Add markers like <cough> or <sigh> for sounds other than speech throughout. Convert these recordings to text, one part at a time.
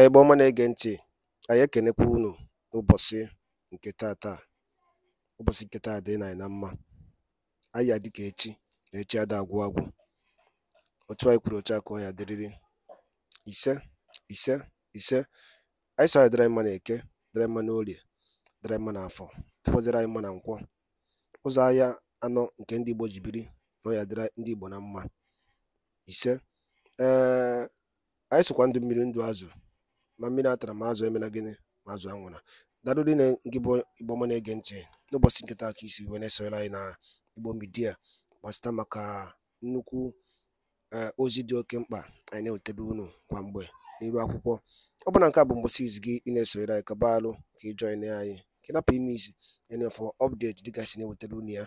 Ebe ọma na-ege ntị, anyị ekenekwa unu n'ụbọchị nke tata. Ụbọchị nke taa dịrị anyị na mma. Anyị ya ka echi, na echi ada agwụ agwụ. Otu anyị kwuru otu a ka ọ ya dịrịrị. Ise, ise, ise. Anyị sọ ya dịrị anyị mma eke dịrị anyị mma n'orie, dịrị anyị mma n'afọ, dịkwazịrị anyị mma na nkwọ. Ụzọ ahịa anọ nke ndị Igbo jibiri na ọ ya dịrị ndị Igbo na mma. Ise, ee, eh, anyị sokwa ndụ mmiri ndụ azụ ma mmiri atara ma azụ emela gịnị ma azụ anwụra daalụ dị na nke bụ igbo ọma na-ege ntị n'ụbọchị nke taa ka isi wee na-esonyere anyị na igbo midia gbasịta maka nnukwu e, ozi dị oke mkpa anyị na-ewetebe unu kwa mgbe n'iru akwụkwọ ọ bụla nke a bụ mgbụsị izu gị ị na-esonyere anyị kaba alụ ka ị jọin anyị ka napụ ime isi enefọ ọpdeti dịka na-ewetebe unu ya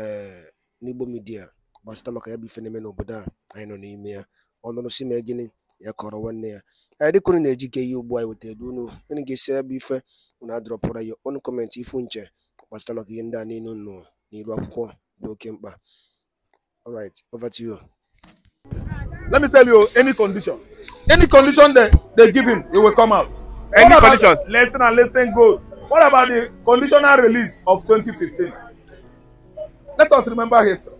ee n'igbo midia gbasịta maka ya bụ ife na-eme n'obodo a anyị nọ n'ime ya ọnụrụ si mee gịnị ya kọrọ nwanne ya anyị dịka na-eji ke ihe ugbu anyị wetara unu unu ga-esi ebe ife unu adọrọpụra ya ọnụ kọmentị ifu nche gbasara maka ihe ndị a niile nụ n'iru akwụkwọ dị oke mkpa all over to you let me tell you any condition any condition they, they give him he will come out any what condition less than less than gold what about the conditional release of 2015 let us remember history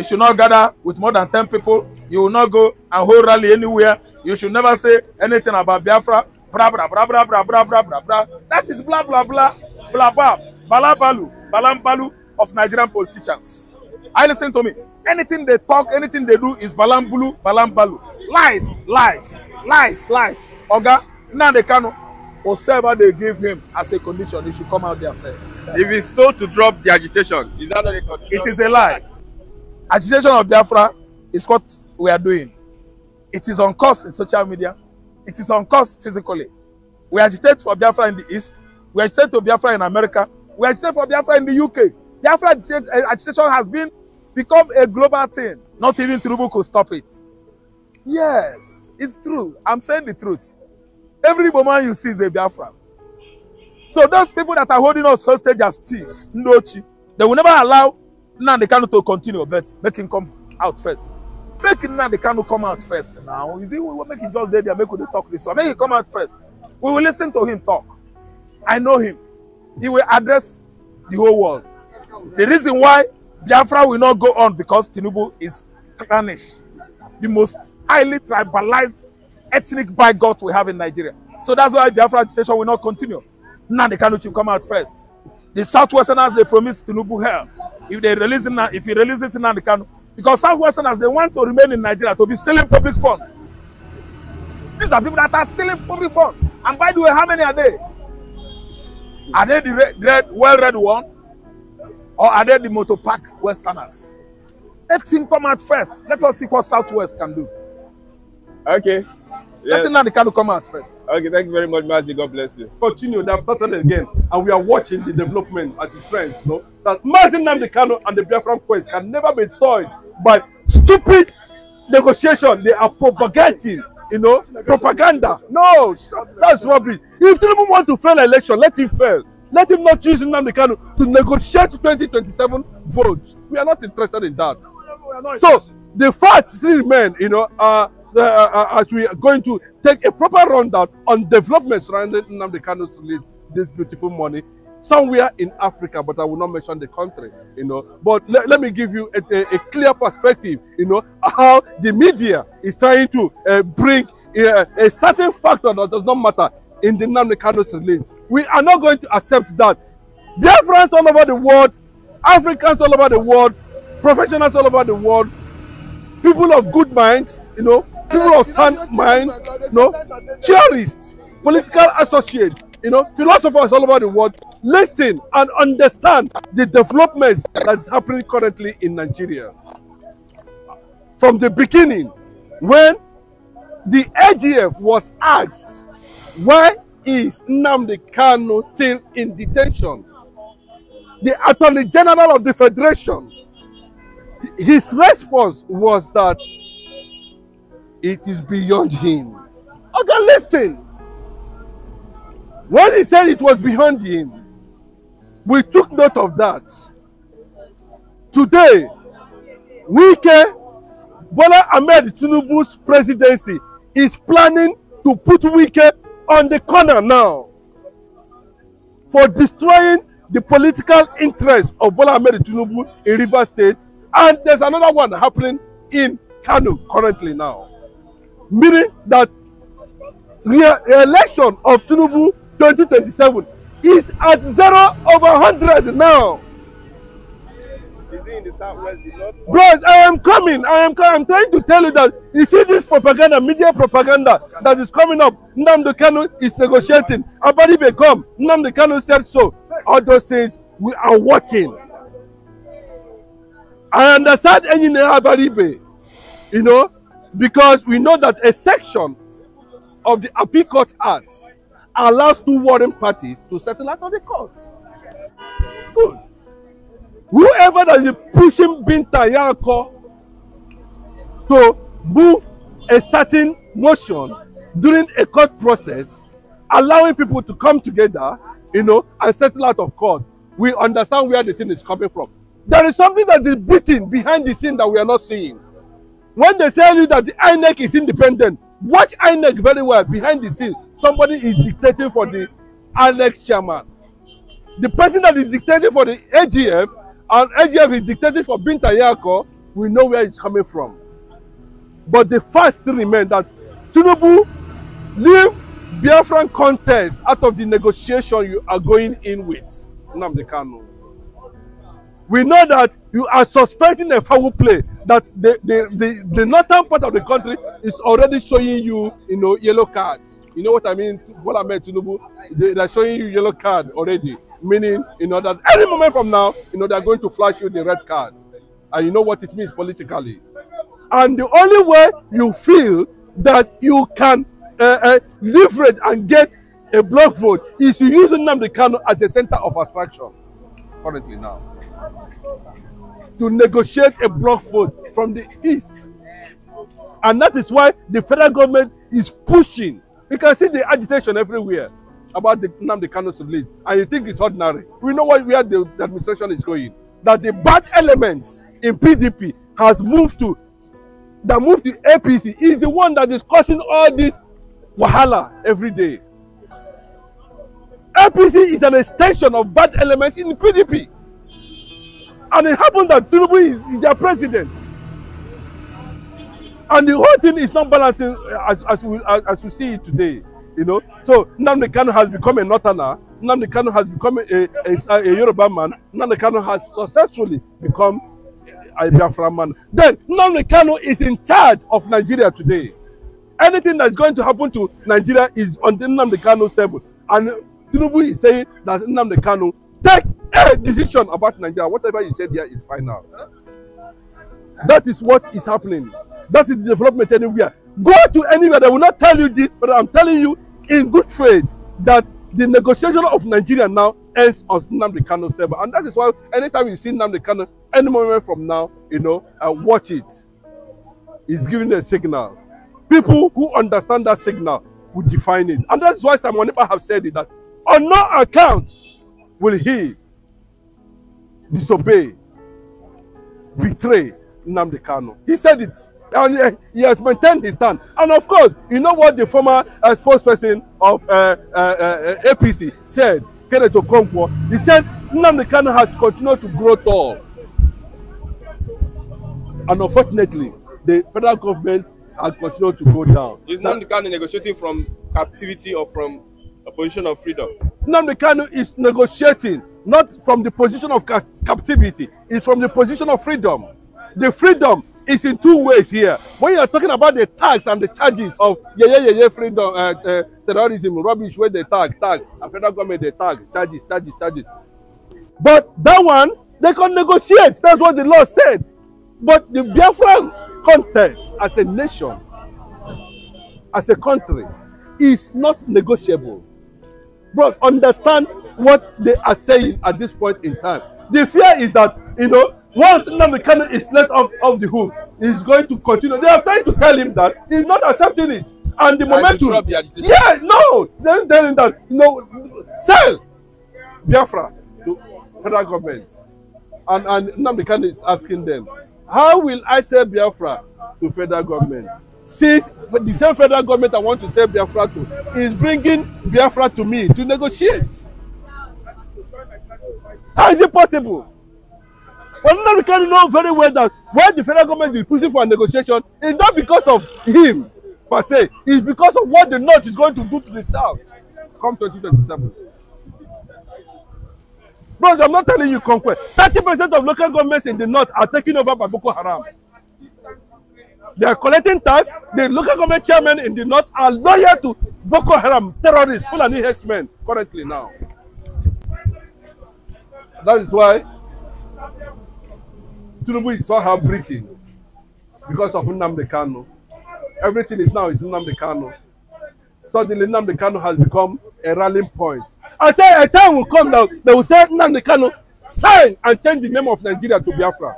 You should not gather with more than ten people. You will not go and hold rally anywhere. You should never say anything about Biafra. Bra, bra, bra, bra, bra, bra, bra, bra, bra. That is blah, blah, blah, blah, blah. Balabalu, Balambalu of Nigerian politicians. I listen to me. Anything they talk, anything they do is Balambulu, Balambalu. Lies, lies, lies, lies. Oga, now they cannot whatever they give him as a condition, he should come out there first. If he's told to drop the agitation, is that not a condition? It is a lie. Agitation of Biafra is what we are doing. It is on course in social media. It is on course physically. We agitate for Biafra in the East. We agitate for Biafra in America. We agitate for Biafra in the UK. Biafra eh, agitation has been become a global thing. Not even Tinubu could stop it. Yes, it's true. I'm saying the truth. Every woman you see is a Biafra. So those people that are holding us hostage as thieves, Ndochi, they will never allow Nnamdi Kanu to continue but make him come out first make Nnamdi Kanu come out first now is it we make him just dey there make we dey talk this one make him come out first we will listen to him talk I know him he will address the whole world the reason why Biafra will not go on because Tinubu is clannish the most highly tribalized ethnic bigot we have in Nigeria so that's why Biafra station will not continue Nnamdi Kanu should come out first the southwesterners they promised Tinubu hell if they release it now, if he releases it now, the Kanu. Because Southwesterners, they want to remain in Nigeria to be stealing public funds. These are people that are stealing public funds. And by the way, how many are they? Are they the red, red, well-read one? Or are they the motopark Westerners? Let him come out first. Let us see what Southwest can do. Okay. Yes. Letting Nanikalu come out first. Okay, thank you very much, Mazi. God bless you. Continue, they've started again, and we are watching the development as it trends. No, that Mazi Nanikalu and the Biafran Quest can never be toyed by stupid negotiation they are propagating. You know, propaganda. No, that's rubbish. If Tinubu want to fail election, let him fail. Let him not choose Nnamdi Kanu to negotiate 2027 votes. We are not interested in that. So the facts still remain, you know, are uh, Uh, uh, as we are going to take a proper rundown on developments surrounding Nnamdi Kano's release this beautiful morning, somewhere in Africa, but I will not mention the country, you know. But le let me give you a, a, a, clear perspective, you know, how the media is trying to uh, bring uh, a certain factor that does not matter in the Nnamdi Kano's release. We are not going to accept that. Dear friends all over the world, Africans all over the world, professionals all over the world, people of good minds, you know, people of sound mind, you know, theorists, political associates, you know, philosophers all over the world, listen and understand the developments that's happening currently in Nigeria. From the beginning, when the AGF was asked, why is Nnamdi Kanu still in detention? The Attorney General of the Federation his response was that it is beyond him. Okay, listen. When he said it was beyond him, we took note of that. Today, Wike Bola Ahmed Tinubu's presidency is planning to put Wike on the corner now for destroying the political interest of Bola Ahmed Tinubu in River State and there's another one happening in Kano currently now. Meaning that re-election of Tinubu 2027 is at zero over 100 now. Is he in the southwest? Bros, I am coming. I am I'm trying to tell you that you see this propaganda, media propaganda that is coming up. Nnamdi Kanu is negotiating. Abadi become. Nnamdi Kanu said so. All those things we are watching. I understand any nehabaribe, you know, because we know that a section of the appeal court act allows two warring parties to settle out of the court. Good. Whoever that is pushing Binta Yanko to move a certain motion during a court process, allowing people to come together, you know, and settle out of court, we understand where the thing is coming from. There is something that is beating behind the scene that we are not seeing. When they tell you that the INEC is independent, watch INEC very well behind the scene. Somebody is dictating for the INEC chairman. The person that is dictating for the AGF and AGF is dictating for Binta Yako, we know where it's coming from. But the fact still remains that Tinubu leave Biafran contest out of the negotiation you are going in with. Namdekanu. we know that you are suspecting a foul play that the the the, the northern part of the country is already showing you you know yellow card you know what i mean bola ahmed tinubu they, they are showing you yellow card already meaning you know that any moment from now you know they are going to flash you the red card and you know what it means politically and the only way you feel that you can uh, uh, leverage and get a block vote is to use Nnamdi Kanu as the center of attraction currently now. to negotiate a block vote from the east. And that is why the federal government is pushing. You can see the agitation everywhere about the the Kano's release. And you think it's ordinary. We know where the, the administration is going. That the bad elements in PDP has moved to, that moved to APC is the one that is causing all this wahala every day. APC is an extension of bad elements in PDP. And it happened that Tinubu is, is their president. And the whole thing is not balancing uh, as, as, we, as, as we see it today. You know, so Nnamdi Kanu has become a northerner. Nnamdi Kanu has become a, a, a Yoruba man. Nnamdi Kanu has successfully become a Biafra man. Then Nnamdi Kanu is in charge of Nigeria today. Anything that's going to happen to Nigeria is on Nnamdi Kanu's table. And Tinubu is saying that Nnamdi Kanu take <laughs> decision about Nigeria, whatever you said here is final. That is what is happening. That is development anywhere. Go to anywhere. They will not tell you this, but I'm telling you in good faith that the negotiation of Nigeria now ends on Nnamdi Kano's table. And that is why anytime you see Nnamdi Kano, any moment from now, you know, uh, watch it. It's giving a signal. People who understand that signal will define it. And that's why Simon Nipa have said it, that on no account will he disobey, betray Nnamdi Kanu. He said it. And he, eh, he has maintained his stand. And of course, you know what the former uh, spokesperson of uh, eh, uh, uh, APC said, Kenneth Okonkwo? He said, Nnamdi Kanu has continued to grow tall. And unfortunately, the federal government has continued to go down. Is Nnamdi Kanu negotiating from captivity or from A position of freedom. Nnamdi Kanu is negotiating not from the position of ca captivity, it's from the position of freedom. The freedom is in two ways here. When you are talking about the tax and the charges of yeah, yeah, yeah, yeah, freedom, uh, uh, terrorism, rubbish, where they tag, tag, and federal government they tag, charges, charges, charges. But that one, they can negotiate. That's what the law said. But the Biafran contest as a nation, as a country, is not negotiable. Bros, understand what they are saying at this point in time. The fear is that, you know, once Nnamdi Kanu is let off, of the hook, he's going to continue. They are trying to tell him that he's not accepting it. And the momentum. Yeah, no. They're telling that, you no, know, sell Biafra to federal government. And, and Nnamdi Kanu is asking them, how will I sell Biafra to federal government? Since the same federal government that want to sell Biafra to is bringing Biafra to me to negotiate. How is it possible? Well, we can know very well that why the federal government is pushing for a negotiation is not because of him per se, it's because of what the North is going to do to the South come 2027. Bros, I'm not telling you conquest. 30% of local governments in the North are taken over by Boko Haram. They are collecting tax. The local government chairman in the north are loyal to Boko Haram terrorists, Fulani herdsmen currently now. That is why Tinubu is so hard breathing because of Nnamdi Kanu. Everything is now is Nnamdi Kanu. Suddenly Nnamdi Kanu has become a rallying point. I say a time will come now, they will say Nnamdi Kanu sign and change the name of Nigeria to Biafra.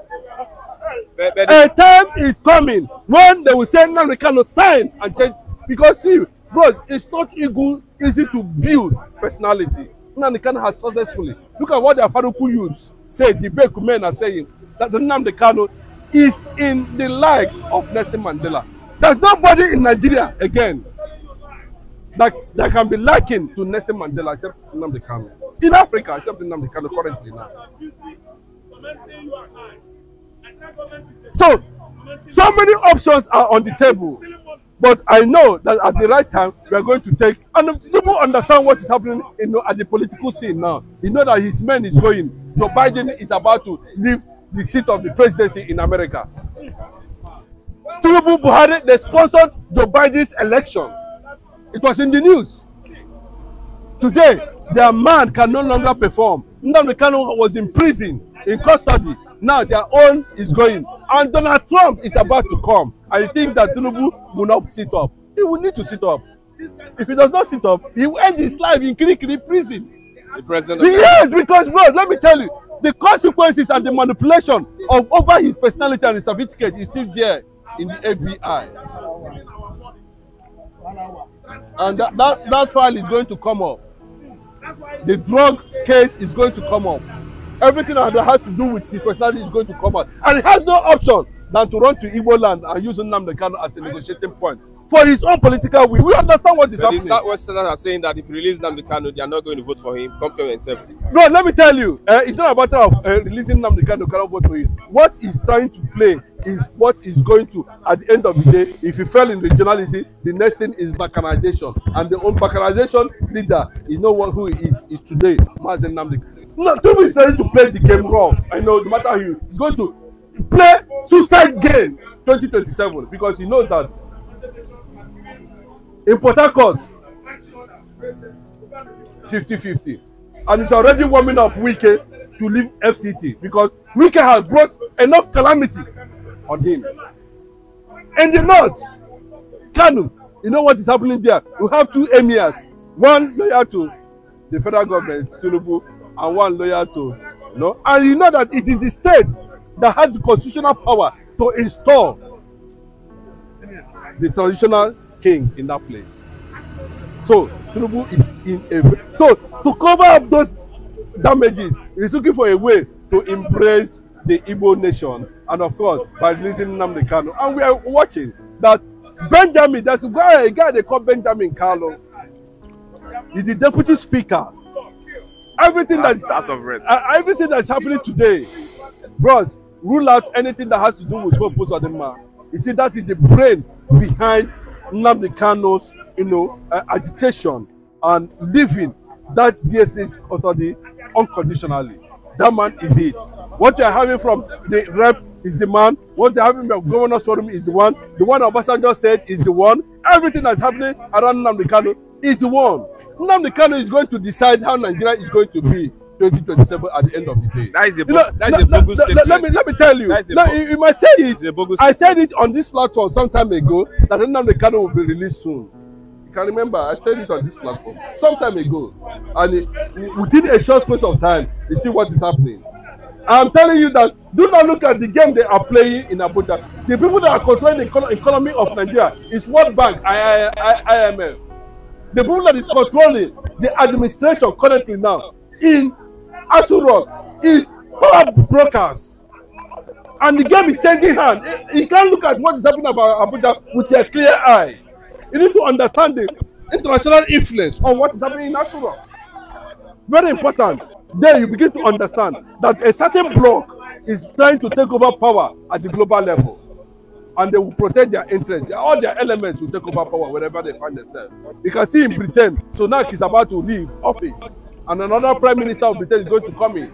A time is coming when they will say now we cannot sign and change because see, bro, it's not equal, easy to build personality. Nnamdi Kanu has successfully. Look at what their Afaruku youths say, the Beku men are saying, that the Nnamdi Kanu is in the likes of Nelson Mandela. There's nobody in Nigeria again that, that can be likened to Nelson Mandela except Nnamdi Kanu. In Africa, except Nnamdi Kanu currently now. So, so many options are on the table. But I know that at the right time, we are going to take, and people understand what is happening you know, at the political scene now. You know that his man is going. Joe Biden is about to leave the seat of the presidency in America. Tinubu Buhari, they sponsored Joe Biden's election. It was in the news. Today, their man can no longer perform. Nnamdi Kanu was in prison in custody. Now their own is going. And Donald Trump is about to come. And think that Tinubu will not sit up. He will need to sit up. If he does not sit up, he will end his life in Kirikiri prison. The president yes, because bro, let me tell you, the consequences and the manipulation of over his personality and his certificate is still there in the FBI. And that, that, that file is going to come up. The drug case is going to come up. everything that has to do with his personality is going to come out. And he has no option than to run to Igbo land and use Nnamdi Kanu as a negotiating point for his own political will. We understand what is but happening. The Westerners are saying that if you release Nnamdi Kanu, they are not going to vote for him. Come to yourself. No, let me tell you, uh, it's not a matter of uh, releasing Nnamdi Kanu cannot vote for him. What he's trying to play is what is going to, at the end of the day, if he fell in regionalism, the next thing is balkanization. And the own balkanization leader, you know what, who he is, is today, Mazen Nnamdi Kanu no don't be ready to play the game rough i know no matter how you go to play suicide game twenty twenty seven because he knows that in port harcourt fifty fifty and it's already warming up wike to leave fct because wike has brought enough calamity on him in the north kano you know what is happening there we have two emirs one loyal to the federal government tinubu and one loyal to no and you know that it is the state that has the constitutional power to install the traditional king in that place so tinubu is in a so to cover up those damages he looking for a way to embrace the igbo nation and of course by releasing nnamdi kanu and we are watching that benjamin That's a guy a guy they call benjamin Carlo. he is the deputy speaker everything that's, that's of Uh, everything that's happening today, bros, rule out anything that has to do with what post Adema. You see, that is the brain behind Nnamdi you know, uh, agitation and leaving that DSA's authority unconditionally. That man is it. What you are having from the rep is the man. What you are having from Governor Sorum is the one. The one Obasanjo said is the one. Everything that's happening around Nnamdi is the one. Nnamdi Kanu is going to decide how Nigeria is going to be 2027 at the end of the day. That is a, you that is a bogus statement. Let me, let me tell you. Now, you, might say it. I said it on this platform some time ago that Nnamdi Kanu will be released soon. You can remember, I said it on this platform some time ago. And within a short space of time, you see what is happening. I'm telling you that do not look at the game they are playing in Abuja. The people that are controlling the economy of Nigeria is World Bank, IMF. The people that is controlling the administration currently now in Aso is power brokers. And the game is changing hand. You can't look at what is happening about Abuja with a clear eye. You need to understand the international influence on what is happening in Aso Very important. Then you begin to understand that a certain bloc is trying to take over power at the global level and they will protect their interests. All their elements will take over power wherever they find themselves. You can see in Britain, now he's about to leave office, and another prime minister of Britain is going to come in.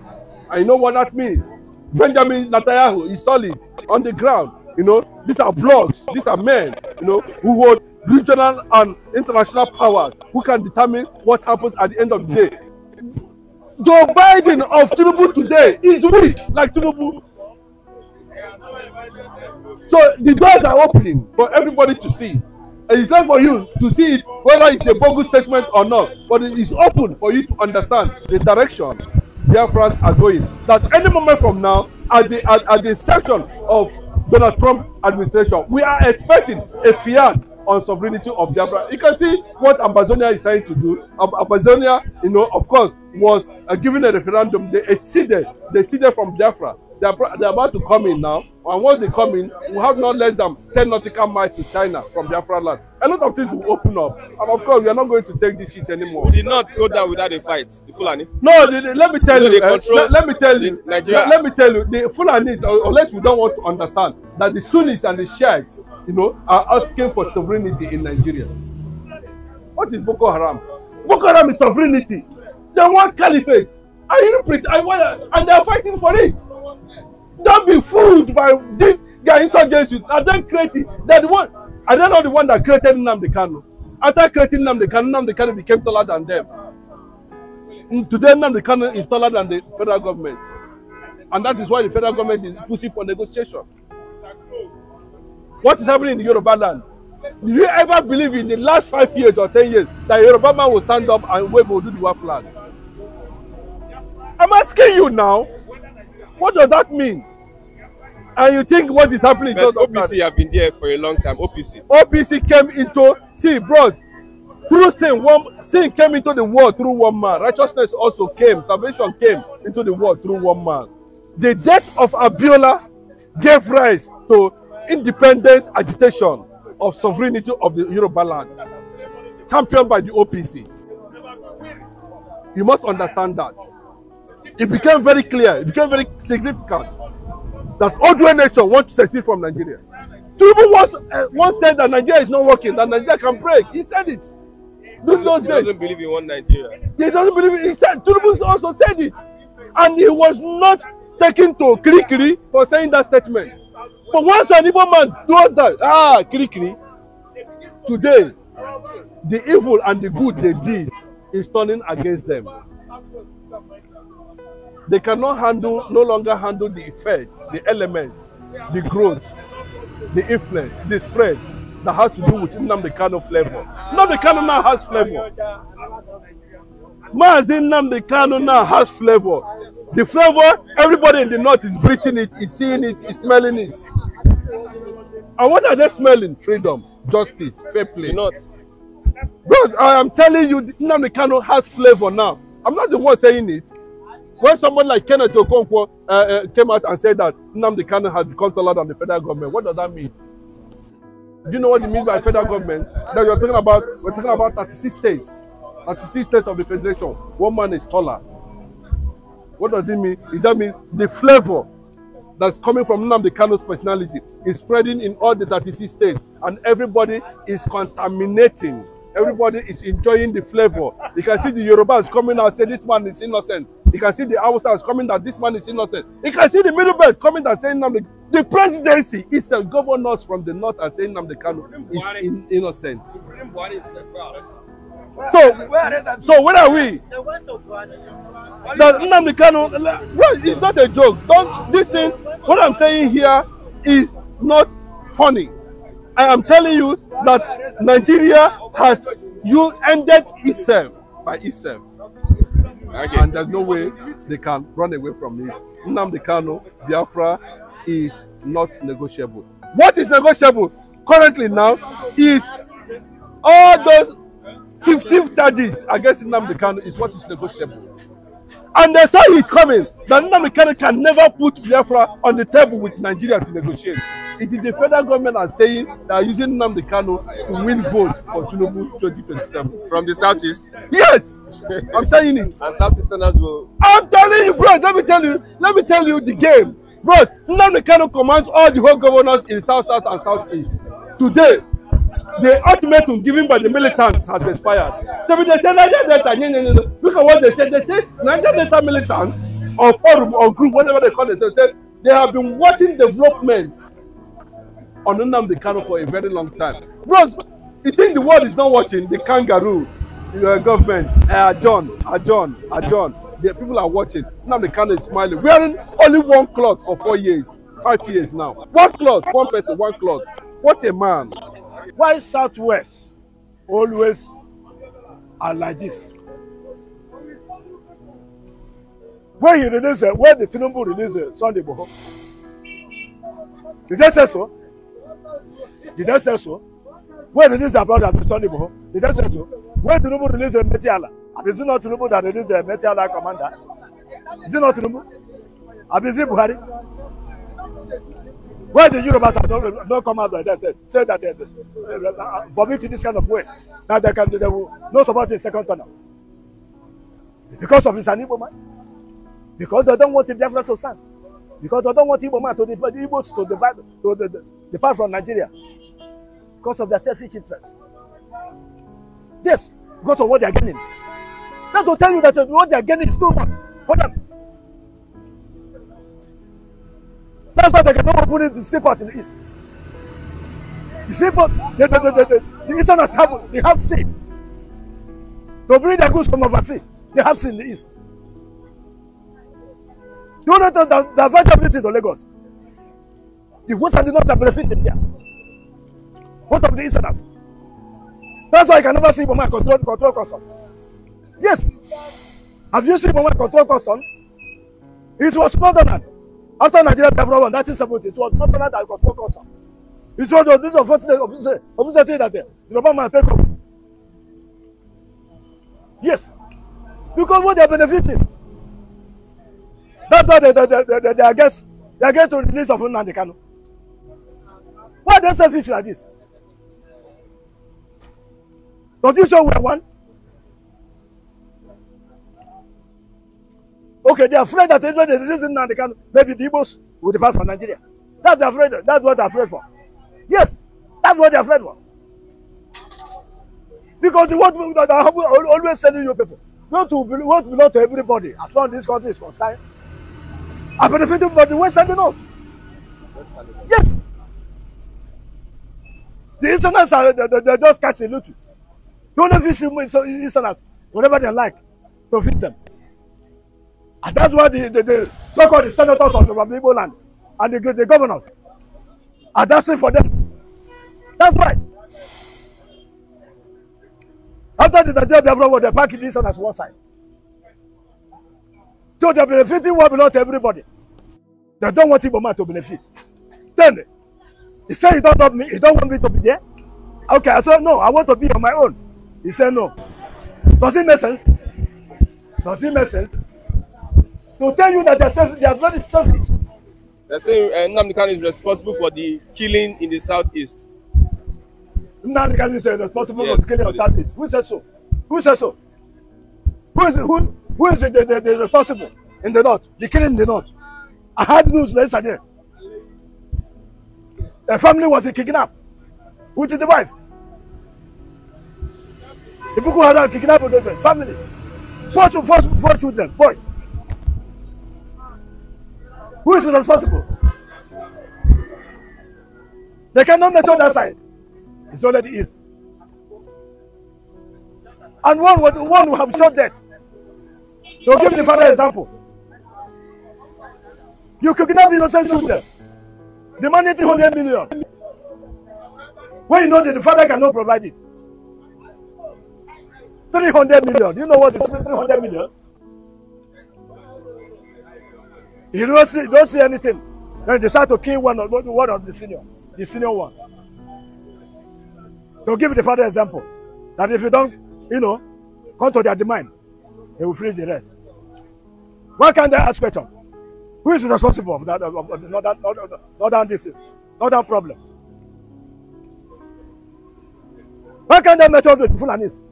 I know what that means. Benjamin Netanyahu is solid on the ground. You know, these are blocks, these are men, you know, who hold regional and international powers who can determine what happens at the end of the day. Joe Biden of Tinubu today is weak like Tinubu So the doors are opening for everybody to see. And it's not for you to see it whether it's a bogus statement or not, but it is open for you to understand the direction Biafrans are going. That any moment from now, at the at, at the inception of Donald Trump administration, we are expecting a fiat on sovereignty of Biafra. You can see what Amazonia is trying to do. Amazonia, you know, of course, was uh, given a referendum. They exceeded, they exceeded from Biafra. They are they are about to come in now. And once they come in, we have not less than ten nautical miles to China from Biafra land. A lot of things will open up. And of course, we are not going to take this shit anymore. We did not go down without a fight, the Fulani. No, the, the, let me tell you. Uh, let, let me tell you. Nigeria. Let, let me tell you. The Fulani, uh, unless we don't want to understand, that the Sunnis and the Shiites, you know, are asking for sovereignty in Nigeria. What is Boko Haram? Boko Haram is sovereignty. They want caliphate. I didn't pretend. I, and they are fighting for it. Don't be fooled by this guy insurgency. And then create it. They're one. Are they not the one that created Nnamdi Kanu? After creating Nnamdi Kanu, Nnamdi Kanu became taller than them. And mm, today, Nnamdi Kanu is taller than the federal government. And that is why the federal government is pushing for negotiation. What is happening in the Yoruba land? Did you ever believe in the last five years or ten years that Yoruba man will stand up and wave do the Oduduwa flag? I'm asking you now, what does that mean? And you think what is happening? But OPC have been there for a long time. OPC. OPC came into see, bros. Through sin, one sin came into the world through one man. Righteousness also came. Salvation came into the world through one man. The death of Abiola gave rise to independence agitation of sovereignty of the Yoruba land, championed by the OPC. You must understand that. it became very clear, it became very significant that Odwe nation wants to secede from Nigeria. Tinubu once, uh, once said that Nigeria is not working, that Nigeria can break. He said it. those he days. He doesn't believe in one Nigeria. He doesn't believe it. He said, Tinubu also said it. And he was not taken to quickly for saying that statement. But once an evil man does that, ah, quickly today, the evil and the good they did is turning against them. They cannot handle, no longer handle the effects, the elements, the growth, the influence, the spread that has to do with Nnamdi Kano flavor. Nnamdi Kano now has flavor. Mazin Nnamdi Kano now has flavor. The flavor, everybody in the north is breathing it, is seeing it, is smelling it. And what are they smelling? Freedom, justice, fair play. Not. Bros, I am telling you, Nnamdi Kano has flavor now. I'm not the one saying it. When someone like Kenneth Okonkwo uh, uh, came out and said that Nnamdi Kanu has become taller than the federal government, what does that mean? Do you know what it means by federal government? That you're talking about, we're talking about 36 states, 36 states of the federation. One man is taller. What does it mean? Is that mean the flavor that's coming from Nnamdi Kanu's personality is spreading in all the 36 states, and everybody is contaminating. Everybody is enjoying the flavor. You can see the Yorubas coming out say this man is innocent. You can see the outsiders coming that this man is innocent. You can see the middle belt coming and saying Namde. The presidency is the governors from the north and saying the Kanu is in, innocent. So, so where are we? That Nnamdi Kanu, well, it's not a joke. Don't this thing. What I'm saying here is not funny. I am telling you that Nigeria has you ended itself by itself. Okay. And there's no way they can run away from it. Nnamdi Kano, Biafra is not negotiable. What is negotiable currently now is all those 15 charges against Nnamdi Kano is what is negotiable. And they saw it coming. The Nnamdi can never put Biafra on the table with Nigeria to negotiate. It is the federal government are saying they are using Nnamdi Kano to win vote for Tinubu 2027. From the southeast? Yes! <laughs> I'm saying it. And southeastern as well. I'm telling you, bro, let me tell you, let me tell you the game. Bro, Nnamdi Kano commands all the whole governors in South South and Southeast. Today, the ultimatum given by the militants has expired. So if they say Niger Delta, no, no, no, no. Look at what they say. They say Niger Delta militants or forum or group, whatever they call it. they, said they have been watching developments on Nnamdi Kano for a very long time. Bros, you think the world is not watching the kangaroo your uh, government uh, adjourn, adjourn, uh, adjourn. Uh, the people are watching. Nnamdi Kano is smiling, wearing only one cloth for four years, five years now. One cloth, one person, one cloth. What a man why southwest always are like this when he release uh, when the tinubu release uh, sunday boho did they say so did they say so when release their brother sunday boho did they say so when tinubu release uh, metiala abi is it not tinubu that release uh, metiala commander is it not tinubu abi is it buhari Why the Yorubas have not, not come out like that? Eh? Say that they eh, eh, vomit in this kind of way. Now they can they will not support the second tunnel. Because of his Igbo man. Because they don't want the Biafra to stand. Because they don't want Igbo man to the Igbos to depart to the, the, depart from Nigeria. Because of their selfish interests. This, because of what they are getting. That will tell you that what they are getting is too much for them. That's why they cannot open it to see court in the East. You see, but the, the, the, the, the, the Easterners have, they have seen. They bring their goods from overseas. They have seen the East. You know that they have everything to Lagos. The Western did not benefit in there. What of the Easterners? That's why I can never see Boma control, control custom. Yes. Have you seen Boma control custom? It was more than that. After Nigeria Biafra War in 1970, it was not that it was focused on. It was the news of first officer, officer thing that the Yoruba man take off. Yes. Because what they are benefiting. That's why they, they, they, they, they are against, they are against the release of Nnamdi Kanu. Why they they selfish like this? Don't you show where one? Okay, they are afraid that when they release him now, they can maybe the Igbos will depart from Nigeria. That's afraid. That's what they're afraid for. Yes, that's what they're afraid for. Because the word that I always telling you people, not to what belong to everybody as far as this country is concerned, are benefiting from the West and the North. Yes. The Easterners are they, they, they're just catching loot. The only see Easterners, whatever they like, to feed them. And that's why the, the, the so-called the senators of the Igbo land and the, the governors are dancing for them. That's why. After the Nigeria Biafra war, they packed this one as one side. So they're benefiting what belongs to everybody. They don't want Igbo to benefit. Then, he said, he don't love me, He don't want me to be there? Okay, I said, no, I want to be on my own. He said, no. Does it make sense? Does it make sense? to tell you that they are, self, they are very selfish. they say saying uh, Namdekan is responsible for the killing in the southeast. Namdekan is responsible yes, for the killing in the southeast. Who said so? Who said so? Who is, who, who is the, the, the, responsible in the north? The killing in the north. I had news yesterday. The family was kidnapped did the wife. The people had kidnapped the family. Four, four, four children, boys. Who is responsible? They cannot measure that side. It's already is. And one would, one would have shot that. To give the father example. You could not be innocent shooter. Demanding 300 million. When you know that the father cannot provide it. 300 million. Do you know what is 300 million? You don't see, don't see anything. Then they decide to kill one of, one of the senior, the senior one. To give the father example, that if you don't, you know, come to their demand, they will freeze the rest. Why can't they ask question? Who is responsible for that, of the northern, not that this, that problem? Why can't they method with Fulanis?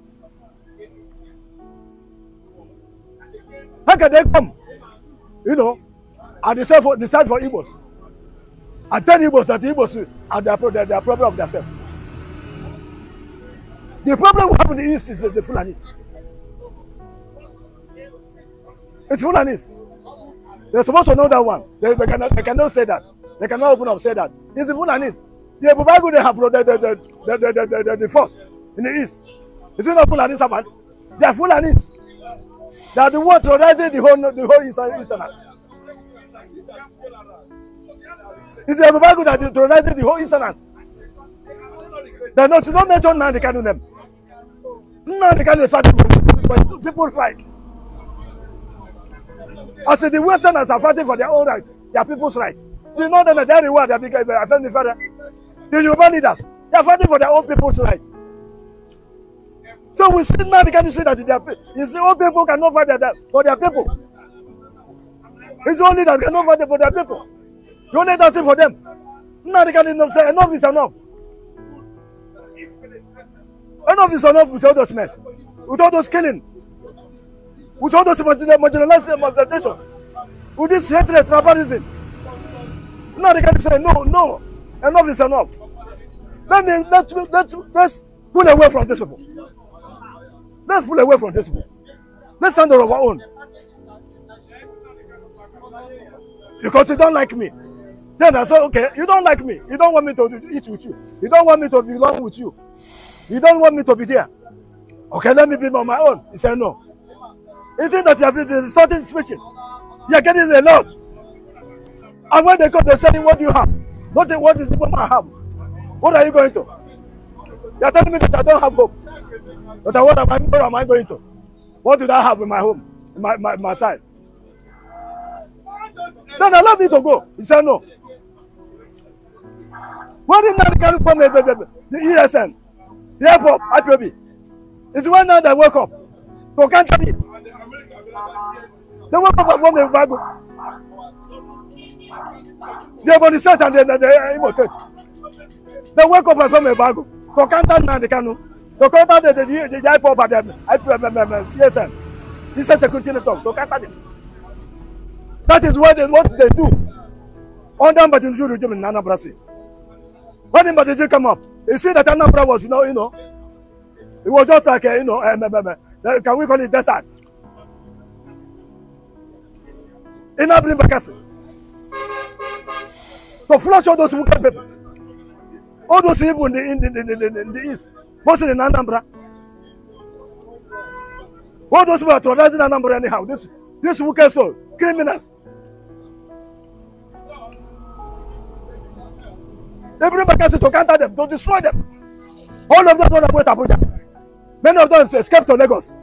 How can they come? You know, and they sell for they sell for Igbos. And tell Igbos that the Igbos are their, their, their problem of themselves. The problem we have in the East is the, Fulanis. It's Fulanis. They're supposed to know that one. They, they, cannot, they cannot say that. They cannot open up say that. It's the Fulanis. The Bubago they have the, the, the, the, the, the, the, the force in the East. It's it not Fulani servants? They are Fulanis. They are the one terrorizing the whole, the whole East. is the Yoruba that is terrorizing the whole insurance. They not, not mentioned. now they can do them. Now they can is fighting People fight. I As the Westerners are fighting for their own rights, their people's rights. You know them are the world, they are the family father. The Yoruba leaders, they are fighting for their own people's rights. So we see now the Kanu see that their, the old people cannot fight for their people. It's only that cannot fight for their people. Don't need that thing for them. Now they can not say enough is enough. Enough is enough with all those mess, with all those killing, with all those marginalization, marginalization, with this hatred, tribalism. Now they can not say no, no, enough is enough. Let me let's let's let's pull away from this. people. Let's pull away from this. people. Let's stand on our own. Because you don't like me. Then I said, okay, you don't like me. You don't want me to eat with you. You don't want me to belong with you. You don't want me to be there. Okay, let me be on my own. He said, no. is not that you have the something special? You are getting a lot. And when they come, they're what do you have? What, the, what is the woman have? What are you going to? You are telling me that I don't have hope. But what am I, where am I going to? What did I have in my home, in my, my, my side? Then allow me to go. He said, no. What not carry from the, the, the, the ESN, the airport, IPOB? It's one night I woke up to counter it. The wake up from the Bible. The are from the and the, the, the Imo church. The wake up from the Bible to counter now the canoe. To counter the, the, the, the IPOB and the IPOB, um, um, um, ESN. This is security network to counter it. That is what they, what they do. Under Mbajinju regime in Anambra State. When Mbadiji come up, you see that Anambra was, you know, you know, it was just like, a, you know, um, um, um, uh, can we call it desert? In Abrimbakasi. To flush all those wicked people. All those evil in the, in the, in the, in the east, mostly in Anambra. All those who are terrorizing Anambra anyhow, this, this wicked soul, criminals. They bring vacancy to counter them, to destroy them. All of them don't went to Abuja. Many of them escaped to Lagos.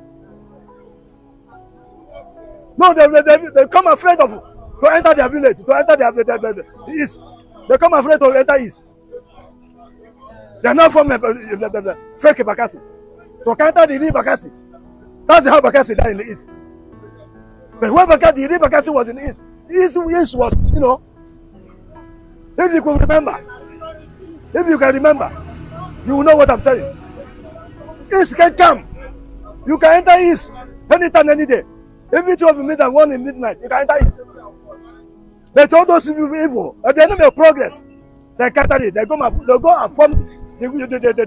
No, they, they, they, they come afraid of to enter their village, to enter their, their, their, their east. They come afraid to enter east. They are not from uh, uh fake Bakassi. To counter the real Bakassi. That's how Bakassi died in the east. But when Bakassi, the real Bakassi was in the east, east, east was, you know, if you could remember, If you can remember, you will know what I'm telling East can come. You can enter East anytime, any day. Every two of you meet and one in midnight, you can enter East. But all those who are evil, at the enemy of progress, they counter it. They go, and, they go and form, the the the the the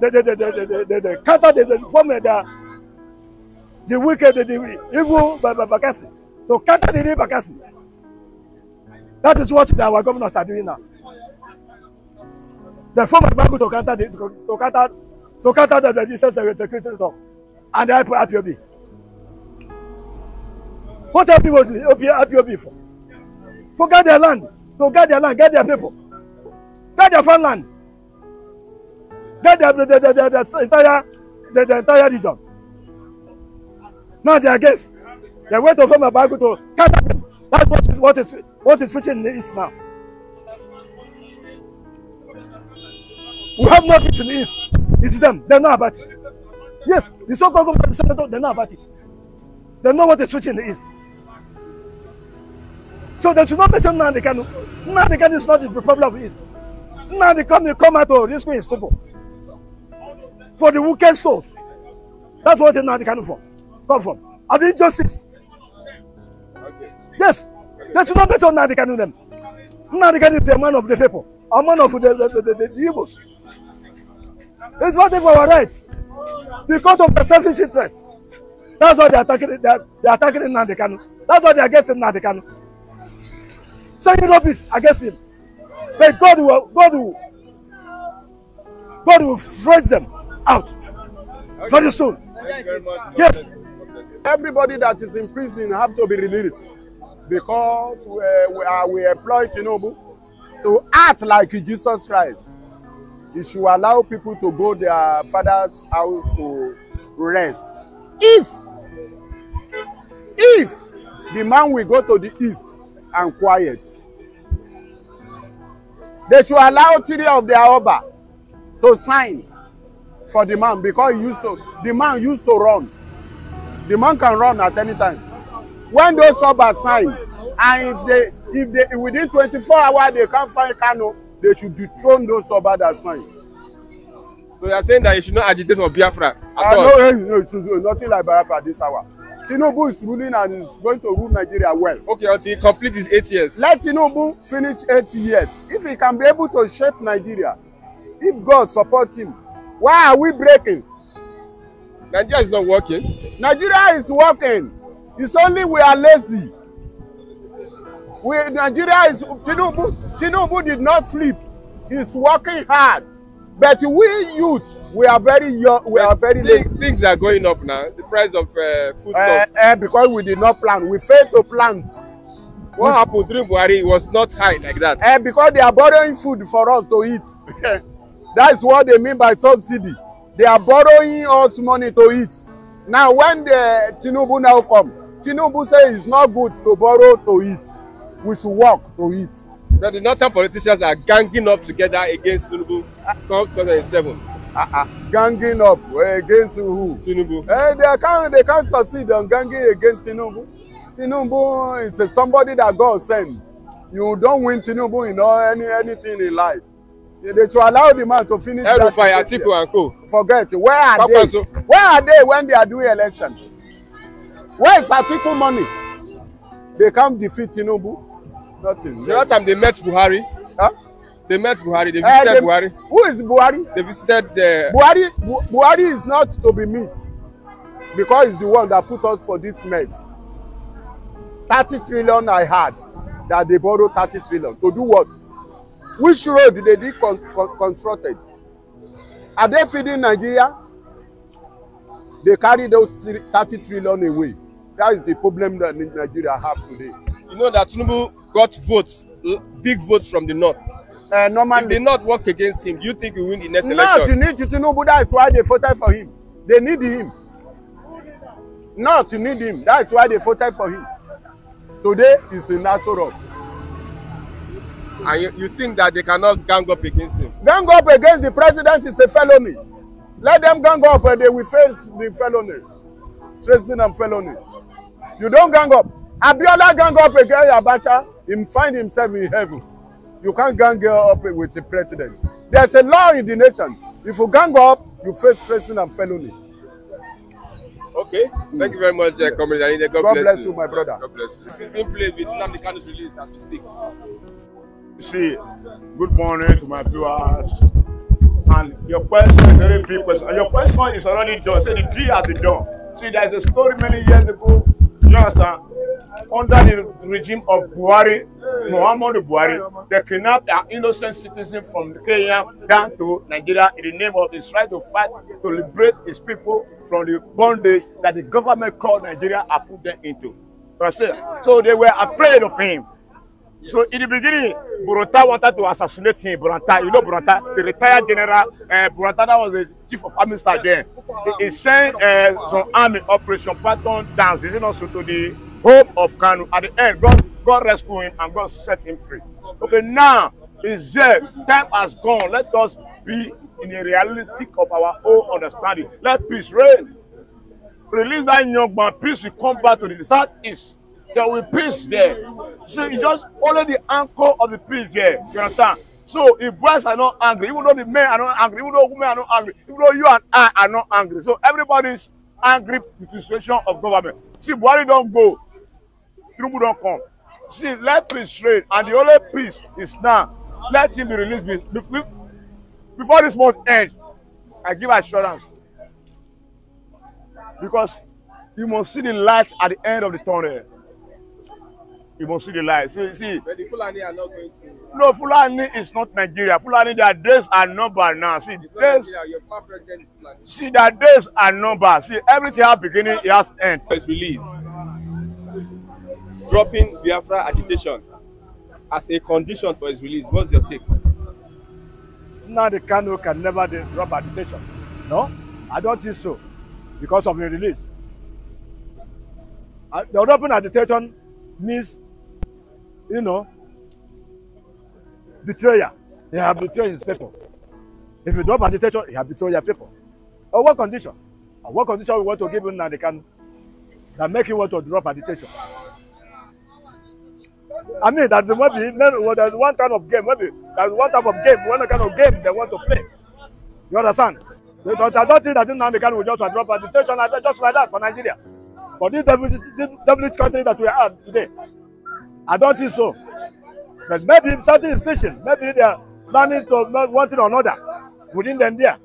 the the the the they, they counter, they, form their, the wicked, the, the evil by, by Bakassi. So counter the evil Bakassi. That is what our governors are doing now. The form of the Bible to counter, the, to counter, to counter the resistance and the Christian talk. And I put IPOB. What IPOB was IPOB for? To get their land, to get their land, get their people, get their farmland, get their, the, the, the, the, the entire, the, the entire region. Now they are against. They went to form a Bible to counter them. That's what is, what is, what is switching is now. We have not written is. It's them. They know about it. Yes, the so-called government senator, they know about it. They know what the treating is. So they should not mention Nnamdi Kanu. Nnamdi Kanu is not the problem of East. Nnamdi they come out to rescue his simple For the wicked souls. That's what Nnamdi for. from. Come from. And the injustice. Yes. They should not mention Nnamdi Kanu them. Nnamdi Kanu is the man of the people. A man of the, the, the, the, the, the It's fighting for our right because of the selfish interest. That's why they're attacking it. They're, they're attacking it now. They can. That's why they're against it now. They Nnamdi Kanu. Saying rubbish against him. But God will, God will, God will fresh them out okay. very soon. very yes. Everybody that is in prison have to be released because we, uh, we, are, we employ Tinubu to act like Jesus Christ. It should allow people to go their father's house to rest. If, if the man will go to the east and quiet, they should allow three of their oba to sign for the man because he used to, the man used to run. The man can run at any time. When those oba sign, and if they, if they, within 24 hours they can't find canoe they should dethrone those Oba that signed. So you are saying that you should not agitate for Biafra at uh, all? No, no, nothing like Biafra this hour. Tinubu is ruling and is going to rule Nigeria well. Okay, until he complete his eight years. Let Tinubu finish eight years. If he can be able to shape Nigeria, if God supports him, why are we breaking? Nigeria is not working. Nigeria is working. It's only we are lazy. We, Nigeria is Tinubu. Tinubu did not sleep. He's working hard. But we youth, we are very young. We are very things, Things are going up now. The price of uh, foodstuffs. Eh, uh, eh, uh, because we did not plan, We failed to plant. What we, happened during Buhari was not high like that. Uh, because they are borrowing food for us to eat. <laughs> That is what they mean by subsidy. They are borrowing us money to eat. Now when the Tinubu now come, Tinubu say it's not good to borrow to eat we should work to it. Now the northern politicians are ganging up together against Tinubu come 2007. Uh -uh. Ganging up against who? Tinubu. Eh, they, can't, they can't succeed on ganging against Tinubu. Tinubu is somebody that God sent. You don't win Tinubu in all, any, anything in life. They should allow the man to finish El that. Fire, Atiku and Co. Forget. Where are Papa they? So. Where are they when they are doing election? Where is Atiku money? They can't defeat Tinubu. Nothing. The yes. last time they met Buhari. Huh? They met Buhari. They eh, visited uh, they, Buhari. Who is Buhari? They visited the. Buhari Bu Buhari is not to be met because he's the one that put us for this mess. Thirty trillion I had that they borrowed thirty trillion to do what? Which road did they be con con constructed? Are they feeding Nigeria? They carry those thirty trillion away. That is the problem that Nigeria have today you know that Tinubu got votes, big votes from the north. Uh, normally, if they not work against him, you think he win the next no, election? Not to need Tinubu. is why they voted for him. They need him. Not to need him. That's why they voted for him. Today is in Nassau And you, you think that they cannot gang up against him? Gang up against the president is a felony. Let them gang up and they will face the felony. Tracing and felony. You don't gang up. Abiola gang up against Abacha, he find himself in heaven. You can't gang up with the president. There's a law in the nation. If you gang up, you face prison and felony. Okay, mm. thank you very much, uh, Comrade God, God bless, bless you. you, my brother. God bless you. This is being played with Nnamdi release as we speak. See, good morning to my viewers. And your question, is very big question. And your question is already done. Say the G has been done. See, there's a story many years ago You understand? Under the regime of Buhari, Muhammadu Buhari, they kidnapped an innocent citizen from Kenya down to Nigeria in the name of his right to fight to liberate his people from the bondage that the government called Nigeria and put them into. So they were afraid of him. So in the beginning, Buranta wanted to assassinate him. Buranta, you know Buranta, the retired general. Uh, eh, Buranta that was the chief of army side then. He, he sent uh, some army operation pattern dance. Is it not so to the hope of Kanu? At the end, God, God rescued him and God set him free. Okay, now is there time has gone. Let us be in the realistic of our own understanding. Let peace reign. Release that young man. Peace will come back to the southeast there will be peace there. So it's just only the anchor of the peace here. You understand? So if boys are not angry, even though the men are not angry, even though women are not angry, even though you and I are not angry. So everybody's angry with the situation of government. See, Buhari don't go. Tinubu don't come. See, let peace reign, and the only peace is now. Let him be released before this month ends. I give assurance. Because you must see the light at the end of the tunnel you must see the light. See, see. But the Fulani are not going to. No, Fulani is not Nigeria. Fulani, their days are numbered now. See, days. See, their days are numbered. See, everything has beginning, it has end. It's release. Dropping Biafra agitation as a condition for his release. What's your take? Now the Kano can never drop agitation. No, I don't think so, because of his release. Uh, the dropping agitation means you know, betrayer. He have betrayed his people. If you drop agitation, he have betrayed your people. On what condition? On what condition we want to give him now the can that make him want to drop agitation? I mean, that's maybe well, there's one kind of game, maybe there's one type of game, one kind of game they want to play. You understand? Because I don't think that Nnamdi Kanu will just drop agitation just like that for Nigeria. For this devilish, this country that we are today, I don't think so. But maybe something is fishing. Maybe they are planning to one thing or another within them there.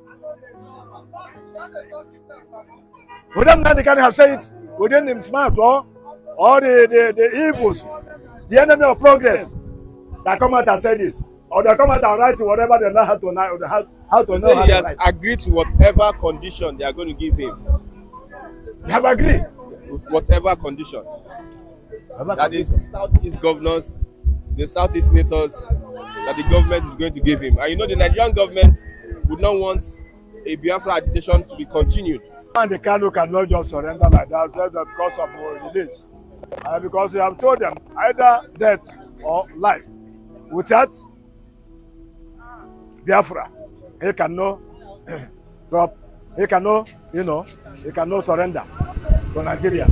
Within them, they can have said it within smart or, or the, the, the evils, the enemy of progress that come out and say this. Or they come out and write whatever they know how to, how, how to know. So how he has write. agreed to whatever condition they are going to give him. They have agreed? Whatever condition that is southeast governors, the southeast senators that the government is going to give him. And you know the Nigerian government would not want a Biafra agitation to be continued. And the Kano cannot just surrender like that just because of our release. and because we have told them either death or life. Without Biafra, he cannot <clears throat> drop, he cannot, you know, he cannot surrender to Nigeria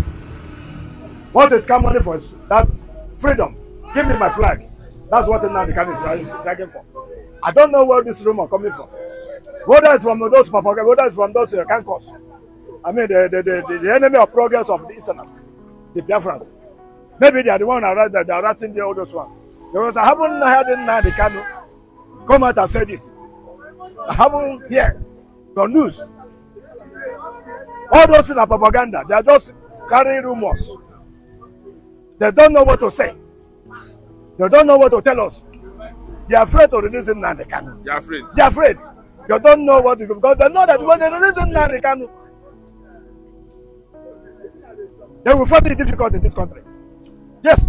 want to scam money for that freedom give me my flag that's what now the kanu is dragging for i don't know where this rumor coming from whether it's from those papaga whether it's from those uh, kankos i mean the the, the the the enemy of progress of the easterners the biafrans maybe they are the one that they are writing the oldest one because i haven't heard now. nnamdi kanu come out and say this i haven't heard the news all those things are propaganda they are just carrying rumors They don't know what to say. They don't know what to tell us. They are afraid to release him now. They can. They are afraid. They are afraid. They don't know what to do because they know that when they release him now, they can. They will find it difficult in this country. Yes.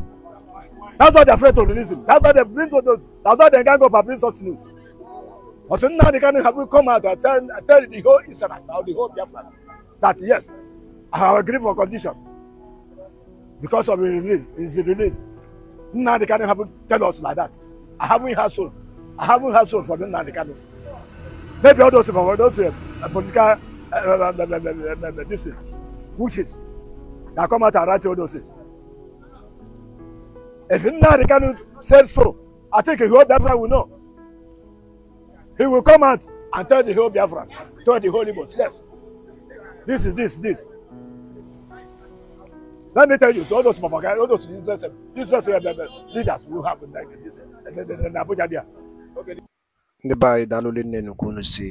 That's why they're afraid to release him. That's why they bring to the, that's why they can't go for bring such news. But so now they can't have come out and tell, tell the whole Israel the whole Biafra that yes, I agree for condition because of the release is the release Nnamdi Kanu haven't tell us like that I haven't had soul I haven't had soul for Nnamdi Kanu maybe all those people were those uh, political uh, uh, uh, uh, uh, this thing wishes that come out and write all those things if Nnamdi Kanu say so I think the whole Biafra will know he will come out and tell the whole Biafra tell the whole Igbos yes this is this this. Let me tell you, so all those propaganda, all those useless, useless leaders will have in Abuja there. ndị be anyị daalụ nne nnukwu si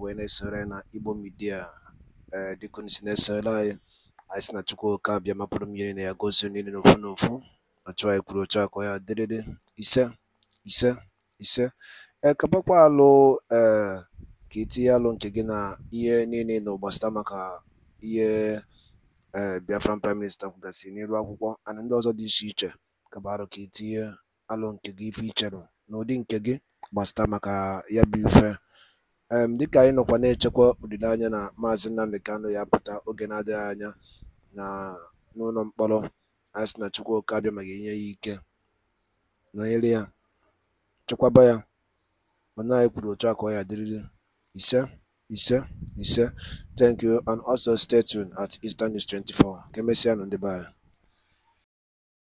wee na na Igbo Media eh, dịka unu si na-esore si na Chukwu oke na ya gozie niile n'ofu n'ofu Na otu ya ise ise ise eh, alụ ee eh, ka alụ nke gị na ihe niile maka ee eh, Biafran Prime Minister kwugasịrị n'ilu akwụkwọ and ndị ọzọ dị iche iche gabarụ ka itinye e alụ nke gị ife icherụ n'ụdị nke gị gbasata maka ya bụ ife em dịka anyị nọkwa na-echekwa olileanya na maazị Nnamdi Kanu ya pụta oge na-adịghị anya na n'ụlọ mkpọrọ anyị sị na Chukwu oke abịa ma ga-enye ya ike nọnyere ya chekwaba ya onye anyị kwuru otu a ọ ya dịrịrị ise Yes, ise. Thank you, and also stay tuned at Eastern News 24. Kemesian on the bar.